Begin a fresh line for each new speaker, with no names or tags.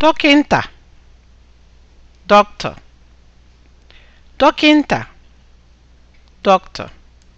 dọkịnta doctor dọkịnta doctor